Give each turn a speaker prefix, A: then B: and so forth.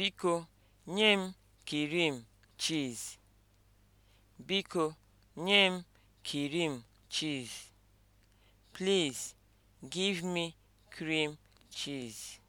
A: Biko nye m kirim chiz. Biko nye m kirim chiz. Please give me cream cheese.